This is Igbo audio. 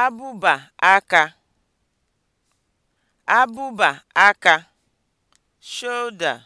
abụba aka abụba aka (shoulder)